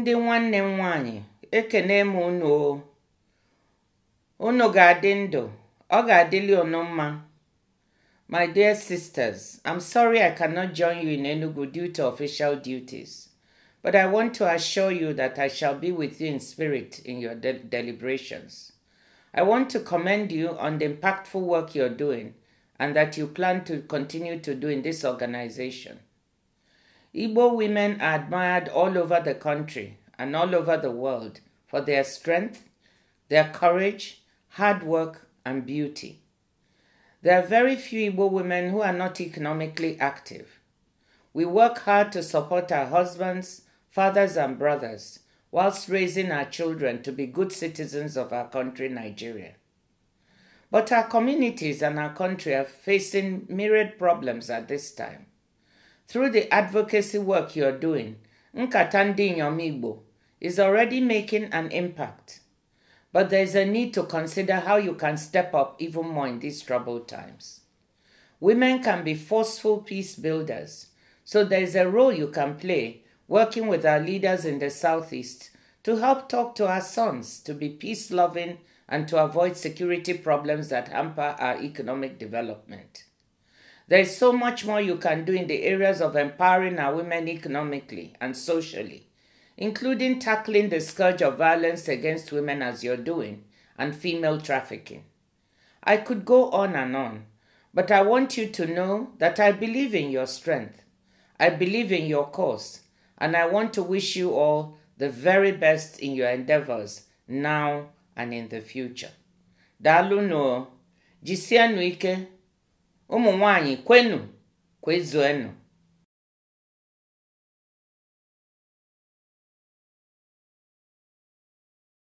ndị nwanne m ekene m unu o unu ga-adị ndụ ọ ga-adịli unu mma my dear sisters i'm sorry i cannot join you in enugu due to official duties but i want to assure you that i shall be with you in spirit in your de deliberations i want to commend you on the impactful work you're doing and that you plan to continue to do in this organization Igbo women are admired all over the country and all over the world for their strength, their courage, hard work, and beauty. There are very few Igbo women who are not economically active. We work hard to support our husbands, fathers, and brothers whilst raising our children to be good citizens of our country, Nigeria. But our communities and our country are facing myriad problems at this time through the advocacy work you're doing, Nkata Igbo is already making an impact. But there is a need to consider how you can step up even more in these troubled times. Women can be forceful peace builders, so there is a role you can play working with our leaders in the Southeast to help talk to our sons to be peace loving and to avoid security problems that hamper our economic development. There is so much more you can do in the areas of empowering our women economically and socially, including tackling the scourge of violence against women as you're doing and female trafficking. I could go on and on, but I want you to know that I believe in your strength. I believe in your cause, and I want to wish you all the very best in your endeavors now and in the future. Dalụ no, jisianuike. ụmụ nwanyị kwenụ kwezuenụ